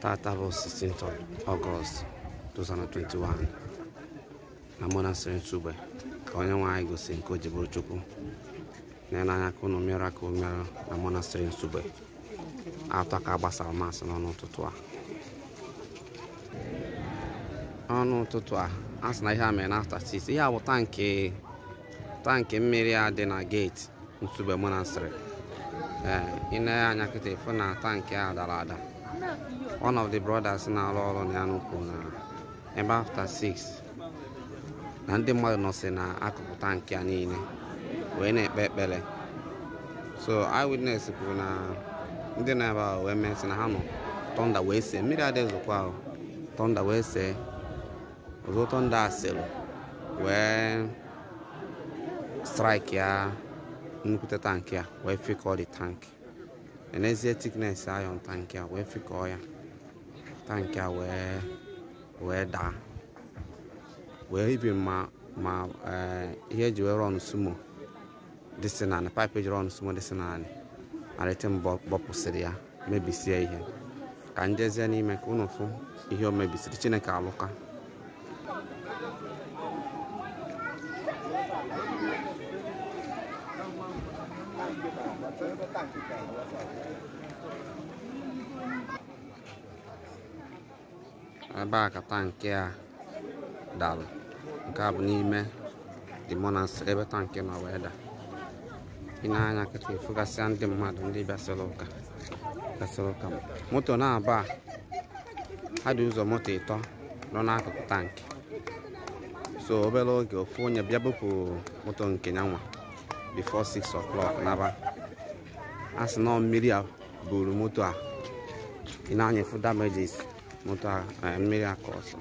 Tata bụ 16th of 2021 na monastery Ntugbe ka onye nwe anyị gosi nke o ji bụrụ Chukwu n'anya ka unu mmerụ aka mmerụ na monastery Ntugbe atọ ka gbasara masị n'ọnụ ụtụtụ a ọnụ ụtụtụ a asị na ihe a mere na afta 6 ihe a bụ tankị tankị mmiri a dị na geeti Ntugbe monastery ee ị na-anya na tankị a dara ada One of the brothers na-arụ ọrụ n'Anu kwuru na ebe afta 6 na ndị mmadụ nọsị n'akụkụ tankị a niile wee na-ekpe ekpere so eyewitness kwuru na ndị na-ebe ahụ wee mesị na ha nọ tọnda wee see mmiri adịghịzikwa ahụ tọnda wee see ọzọ tọnda asịrị wee strike ya nnukwu tankị a wee fikọọ the tank enezie tiknes ayọ tankị a wee fịkọọ ya tankị a wee wee daa wee ibi ma ma ihe uh, eji wee rọn sumo dịsị naanị paịpụ eji rọn sumo dịsị naanị malite mbọ bọpụsịrị ya mebisie ihe ka njezie n'ime ka unu fụ ihe o mebisiri chineke alụka ebe a kata nke a dara nke a bụ n'ime dị na nsịrị ebe tankị nọ wee da ị na-anya nkịta efugasịa ndị mmadụ ndị bịasịrị ụka bịasịrị ụka moto na-aba ha dị ụzọ moto ịtọ nọ n'akụkụ tankị so obere oge ofu onye bịa bụpụ moto nke nyanwa before 6 o'clock n'aba a sị na mmiri a buru moto a ị na-anyịfụ damages moto a eh, mmiri a ọsọ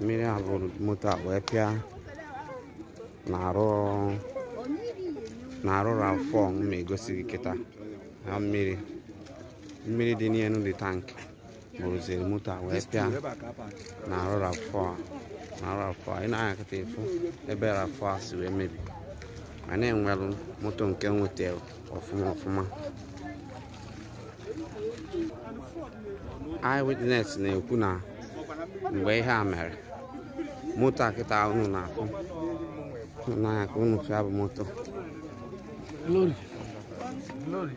mmiri a buru moto a wee pịa na-arụ round 4 m egosi gị mmiri mmiri dị n'elu dị tankị bụrụziri moto a wee pịa na arụrụ afọ a na arụrụ afọ a ị na-anya kịta efu ebe rafọ a si wee mebie. ma na-enwelụ moto nke nweta ọfụma ọfụma eyewitness na-ekwu na mgbe ihe a mere moto akịta kịta unu na-akụ n'anya ka unu fịa bụ moto Thank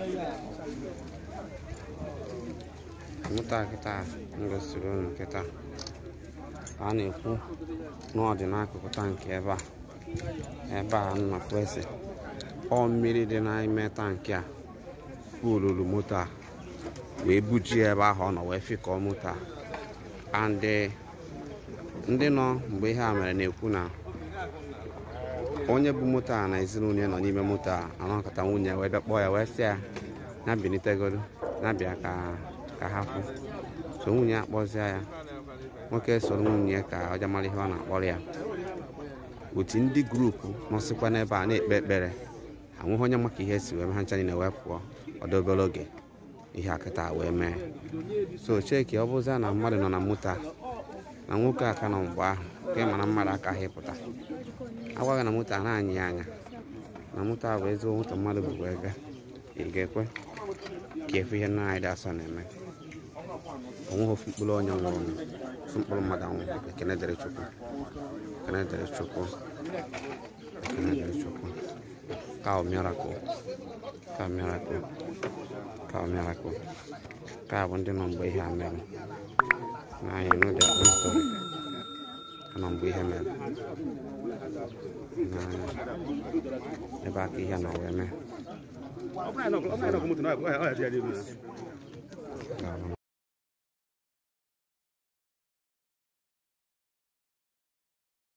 eh? you. mụta kịta m gosiri nkịta nkịta a na-ekwu n'ọdị n'akụkụ tankị ebe a ebe a nnakwesị ọ mmiri dị n'ime tankị a olulu moto a wee buji ebe ahụ ọ nọ wee fịkọọ moto a andị eh, ndị nọ mgbe ihe a mere na-ekwu na onye bụ moto a na ezinụlọ ya nọ n'ime moto a anọkọta nwunye wee bịa ya wee sị ya na na bịa ka ka ha fụ so nwunye akpọzie ya nwoke soro nwunye ka ọ jamara ihe ọ na-akpọrọ ya otu ndị grupu nọsịkwa n'ebe a na-ekpe ekpere anwụghị onye maka ihe si wee ha ncha na wee pụọ ọdobere obere oge ihe akịta wee mee so cheki ọ bụzia na mmadụ nọ na moto na nwoke aka nọ mgbe ahụ nke mana mmadụ aka ha ịpụta agwaghị na moto a na-anyị ya anya na moto a bụ ezigbo moto mmadụ bụ wee ị ga-ekwe ka efu ihe na anyị dị asọ na-eme omo fo bulo nyamo sumpol madan e kene dere choko kene dere choko kene dere choko kao mirako kao mirako kao mirako kao bonde non boy hamel na yenu de story non boy hamel na e ba ki ya na weme Opna no, opna no, kumutu no, ayo, ayo, ayo, ayo, ayo, ayo,